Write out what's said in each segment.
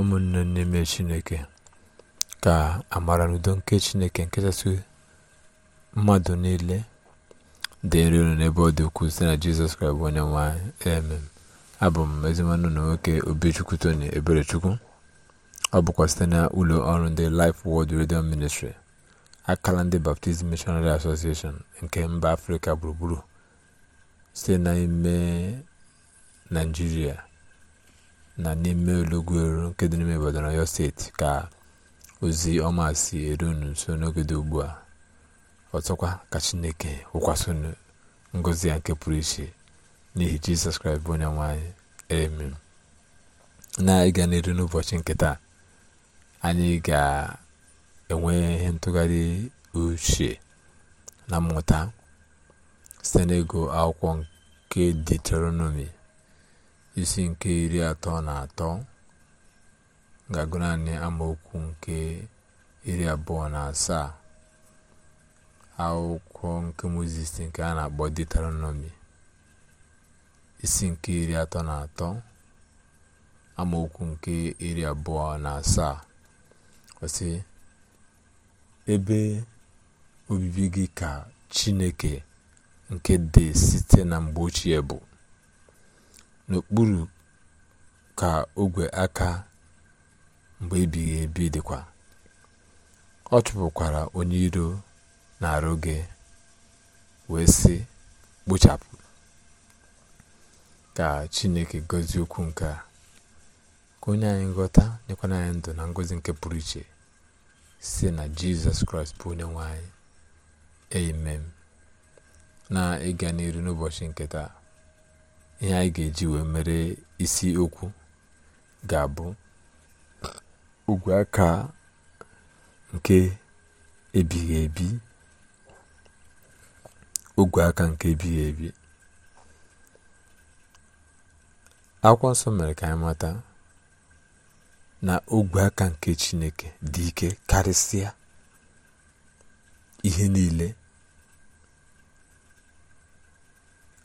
ụmụnne n'ime chineke ka amara na udo nke chineke nkechasị mmadụ niile dịrị unu n'ebe ọ dị ukwuu site na jizọs kraịst bụ onye nwanyị emem abụ m ezimanụ na nwoke obechukwu tony eberechukwu ọ bụkwa site na ụlọ ọrụ ndị Life wọld Radio Ministry akala ndị Baptist Missionary Association nke mba afrịka gburugburu site n'ime naijiria na n'ime olọgụrụ nke dị n'ime Ibadan na steeti ka ozi ọma si eru unu nso n'oge dị ugbu a ọtụkwa ka Chineke wụkwasị ngozi ngọzi nke pụrụ iche n'ihi Jizọs Kraịst bụ onye nwe anyị na-ịga n'eru n'ụbọchị nke anyị ga-enwe ihe ntụgharị uche na mmụta site akwụkwọ nke detronọmi isi nke iri atọ na atọ ga-agụ naanị amaokwu nke iri abụọ na asaa akwụkwọ nke mozis nke a na-akpọ deteronọmi isi nke iri atọ na atọ amaokwu nke iri abụọ na asaa ebe obibi gị ka chineke nke dị site na mgbe ochie bụ n'okpuru ka ogwe aka mgbe ebighị ebi dịkwa ọ chụpụkwara onye iro na-arụ gị wee sị kpochapụ ka chineke gozie okwu nke a ka onye anyị nghọta nyekwana anyị ndụ na ngọzi nke pụrụ iche si na jizọs kraịst bụ onye nwanyị anyị amen na ịga n'iru n'ụbọchị nke taa ihe anyị ga-eji wee mere isi okwu ga-abụ ogwe aka nke ebighị ebi ogwe aka nke ebighị ebi akwa nsọ mere ka anyị mata na ogwe aka nke chineke dị ike karịsịa ihe niile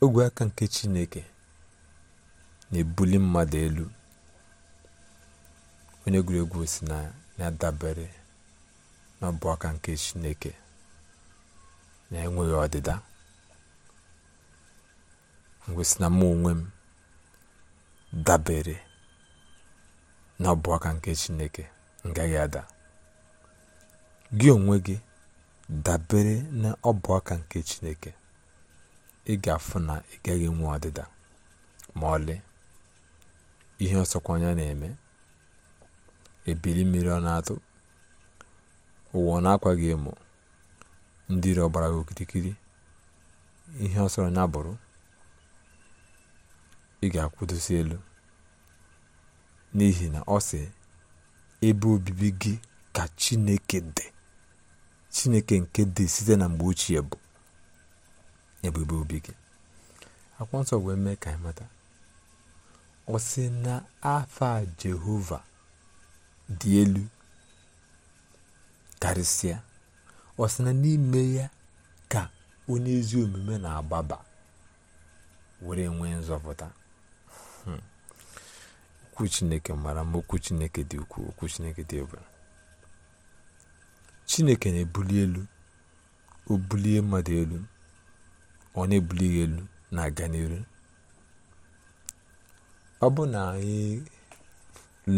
ogwe aka nke chineke na-ebuli mmadụ elu onye egwuregwu si na ya dabere n'ọbụ aka nke chineke na enweghị ọdịda ngwesị na mụ onwe m dabere n'ọbụ aka nke chineke ngaghị ada gị onwe gị dabere na ọbụ aka nke chineke ị ga-afụ na ị gaghị enwe ọdịda ma ọlị ihe ọsọkwanya na-eme ebili mmiri ọ na-atụ ụwa ọ na-akwa gị emo ndị iro ọgbara gị okirikiri ihe ọ anya bụrụ ị ga-akwụdosi elu n'ihi na ọ sị ebe obibi gị ka chineke dị chineke nke dị site na mgbe ochie bụ ebe obi gị akwụkwọ nsọ wee mee ka anyị mata ọ sị na afa jehova dị elu karịsịa ọ sị na n'ime ya ka onye ezi omume na-agbaba were nwee nzọpụta hmm. okwu chineke mara ma okwu chineke dị ukwuu okwu chineke dị ebere chineke na-ebuli elu o bulie mmadụ elu ọ na-ebuli elu na-aga n'elu. ọ bụ na anyị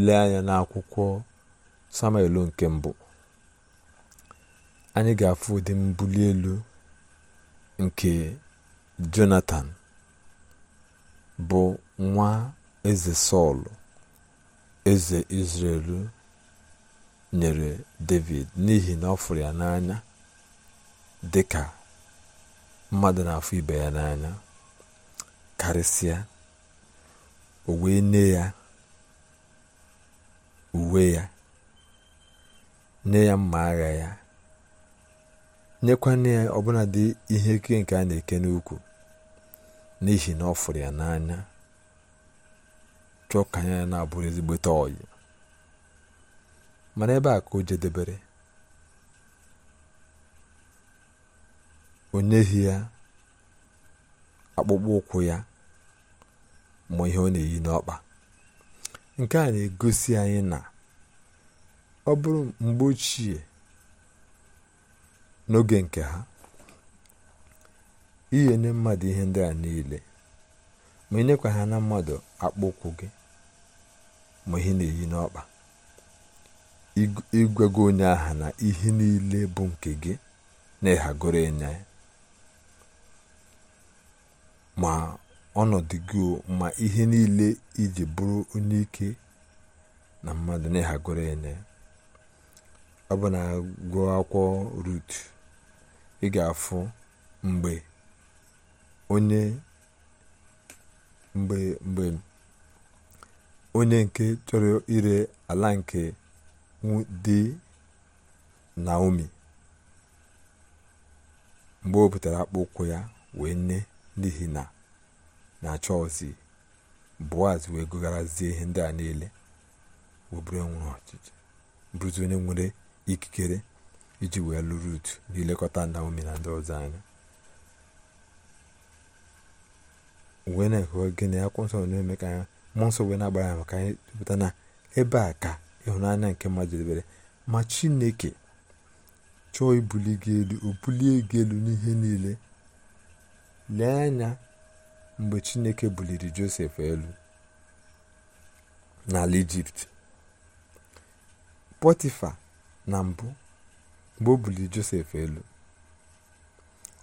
lee anya n'akwụkwọ samuel nke mbụ anyị ga-afụ ụdị mbuli elu nke jonatan bụ nwa eze sọl eze israelu nyere david n'ihi na ọ fụrụ ya n'anya dị ka mmadụ na-afụ ibe ya n'anya karịsịa o wee nye ya uwe ya nye ya mma agha ya nyekwana ya ọbụla dị ihe ike nke a na-eke n'ukwu n'ihi na ọ fụrụ ya n'anya chọọ ka anya ya na-abụrụ ezigbote ọyị mana ebe a ka o jedebere o nyeghị ya akpụkpọ ụkwụ ya ma ihe ọ na-eyi n'ọkpa nke a na-egosi anyị na ọ bụrụ mgbe ochie n'oge nke ha inye nye mmadụ ihe ndị a niile ma enyekwa ha na mmadụ akpụ ụkwụ gị ma ihe na-eyi n'ọkpa ịgwago onye aha na ihe niile bụ nke gị na ịhagoro ịnya ma ọnọdụ gị ma ihe niile iji bụrụ onye ike na mmadụ na-ehagoro bụ na gụọ akwụkwọ Rut, ị ga-afụ mgbe onye nke chọrọ ire ala nke na Naomi mgbe o butere akpụụkwụ ya wee nye n'ihi na na chọọchị boaz wee gụgharazie ihe ndị a niile wee bụrụzi onye nwere ikikere iji wee lụrụ utu n'ilekọta naomi na ndị ọzọ anya wee na-ekwu gịnị akwụkwọ nsọ na-eme ka anya mmụọ nsọ wee na-agbara ya maka anyị tụpụta na ebe a ka ịhụnanya nke mmadụ debere ma chineke chọọ ibuli gị elu o bulie gị elu n'ihe niile lee anya mgbe chineke buliri josef elu n'ala ijipt pọtifa na mbụ mgbe o buliri josef elu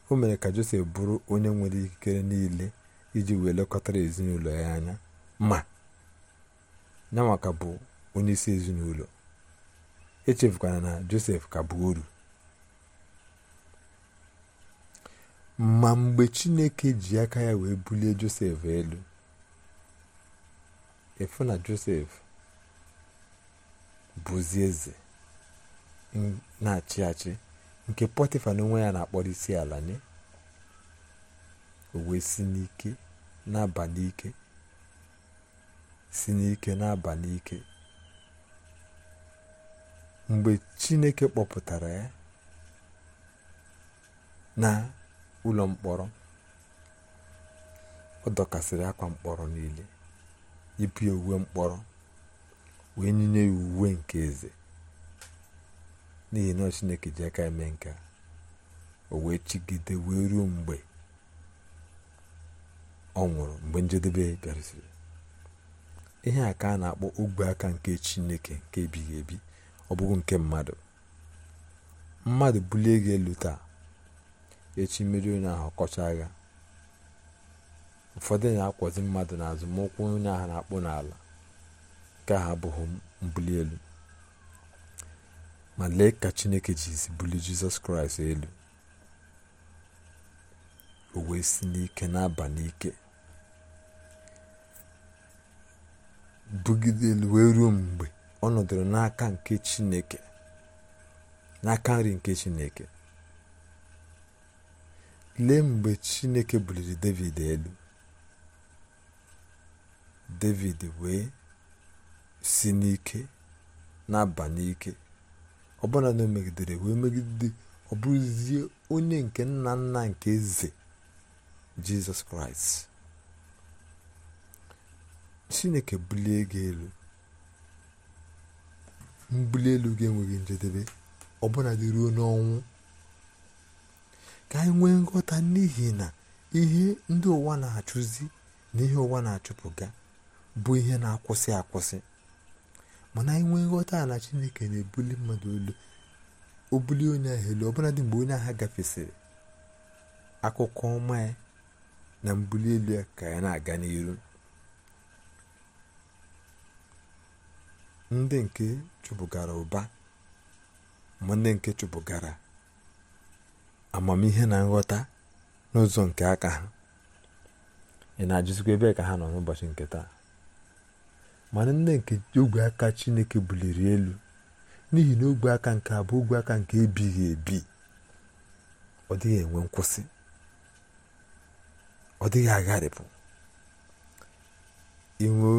o mere ka josef bụrụ onye nwere ikikere niile iji wee lekọtara ezinụlọ ya anya ma maka bụ onye isi ezinụlọ echefukwana na josef ka bụ oru ma mgbe chineke ji aka ya wee bulie josef elu efu na josef bụzi eze na-achị achị nke pọtịfa n'onwe ya na-akpọrọ isi ala nye o si n'ike na n'ike si n'ike na-aba n'ike mgbe chineke kpọpụtara ya na ụlọ mkpọrọ ọ dọkasịrị akwa mkpọrọ niile yipụ ya uwe mkpọrọ wee nyinye ya uwe nke eze n'ihi na chineke ji aka eme nke a o wee chigide wee ruo mgbe ọ nwụrụ mgbe njedebe bịarụsịrị ihe a ka a na-akpọ ogwe aka nke chineke nke ebighị ebi ọ bụghị nke mmadụ mmadụ bulie gị elu taa echi mmiri onye ahụ kọchaa ya ụfọdụ na-akwọzi mmadụ n'azụ ma ụkwụ onye ahụ na-akpụ n'ala nke ha abụghị mbuli elu ma lee ka chineke jizi buli jizọs kraịst elu o wee si n'ike na-aba n'ike bugide elu wee ruo mgbe ọ nọdụrụ n'aka nke chineke n'aka nri nke chineke lee mgbe chineke buliri david elu david wee si n'ike na-aba n'ike ọbụna na o megidere wee megide ọ bụrụzie onye nke nna nna nke eze jizọs kraịst chineke bulie gị elu mbuli elu gị enweghị njedebe ọbụla dị ruo n'ọnwụ ka anyị nwee nghọta n'ihi na ihe ndị ụwa na-achụzi na ihe ụwa na-achụpụga bụ ihe na-akwụsị akwụsị mana anyị nwee nghọta na chineke na-ebuli mmadụ olu obuli onye ahụ elu dị mgbe onye agha gafesịrị akụkọ ọma ya na mbuli elu ya ka ya na-aga n'iru ndị nke chụpụgara ụba ma ndị nke chụpụgara amamihe na nghọta n'ụzọ nke aka ha ị na-ajụzikwa ebe ka ha nọ n'ụbọchị nke taa mana nne nke ogwe aka chineke buliri elu n'ihi na ogwe aka nke a bụ ogwe aka nke ebighị ebi ọ dịghị enwe nkwụsị ọ dịghị agharịpụ inwe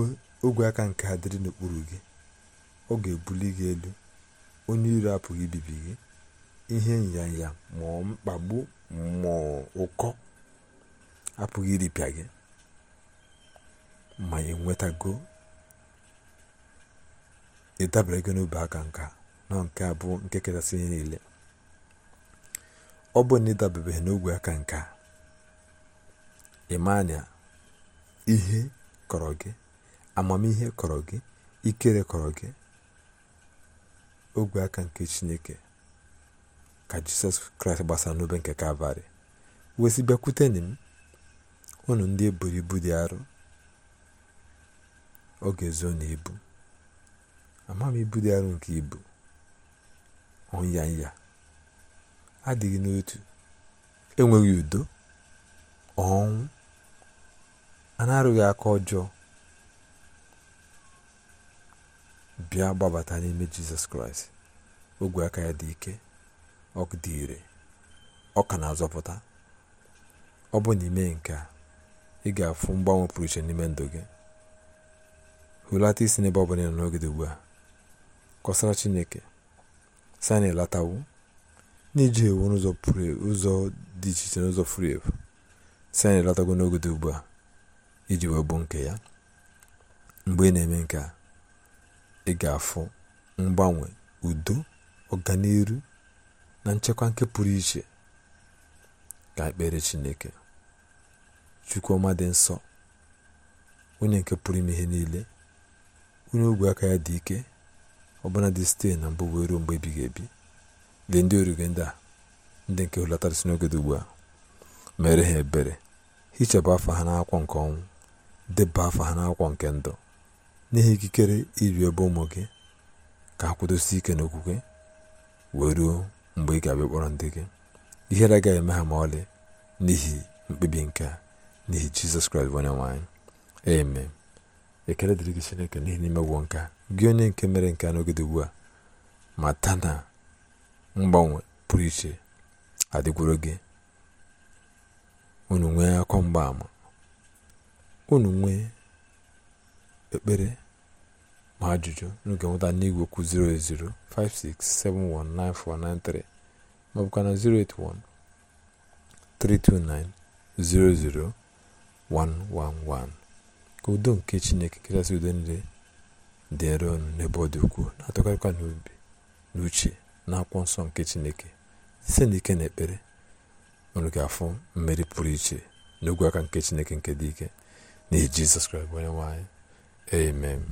ogwe aka nke adịrị n'okpuru gị ọ ga-ebuli gị elu onye iro apụghị ibibi gị ihe nyanya ma mkpagbu ma ụkọ apụghị iripịa gị ma enwetago ịdabere gị n'obi aka nka na nke abụọ nke kachasị ihe niile ọ bụ na ịdabebeghị n'ogwe aka nka ịmanya ihe kọrọ gị amamihe kọrọ gị ikere kọrọ gị ogwe aka nke chineke ka jizọs kraịst gbasara n'obe nke kalvarị wezi bịakwute na m unu ndị eburu ibu dị arọ ọ ga na ibu ama m ibu dị arọ nke ibu ọnya nya adịghị n'otu enweghị udo ọnwụ a na aka ọjọọ bịa gbabata n'ime jizọs kraịst ogwe aka ya dị ike ọkụ dị ire ọ ka na-azọpụta ọ bụ n'ime nke a ị ga-afụ mgbanwe pụrụ iche n'ime ndụ gị hụlata isi n'ebe ọ bụla nọ n'oge dị ugbu a kọsara chineke si anyị latawo n'iji ewu n'ụzọ e, dị iche iche n'ụzọ furu efu si anyị latago n'oge dị ugbu a iji wee bụ nke ya mgbe ị na-eme nke a ị ga-afụ mgbanwe udo ọganihu. na nchekwa nke pụrụ iche ka ekpere chineke chukwuma dị nsọ onye nke pụrụ ime ihe niile onye ogwe aka ya dị ike ọbụna dị site na mbụ wee ruo mgbe ebighị ebi dị ndị orige ndị a ndị nke hụlatara si n'oge ugbu a mere ha ebere hichapụ afọ ha n'akwụkwọ nke ọnwụ deba afọ ha n'akwụkwọ nke ndụ n'ihi ikikere iri ebe ụmụ gị ka ha kwudosie ike n'okwukwe wee ruo mgbe ị ga-abịa kpọrọ ndị gị ihere agaghị eme ha ma ọlị n'ihi mkpebi nke a n'ihi jizọs kraịst bụ onye nwanyị eme ekele dịrị gị chineke n'ihi n'ime gwọ nke gị onye nke mere nke a n'oge ugbu a ma mata na mgbanwe pụrụ iche adịgworo gị unu nwee akọ mgbaama unu nwee ekpere ma ajụjụ n'oge nweta n'igwe kwụ 08056719493 ma ọbụkwa na ka udo nke chineke kachasị udo niile dị ọnụ n'ebe ọ dị ukwuu na-atụkarịkwa n'obi n'uche na akwụkwọ nsọ nke chineke site n'ike na ekpere unu ga-afụ mmeri pụrụ iche n'ogwe aka nke chineke nke dị ike n'ihi jizọs kraịst onye nwanyị amen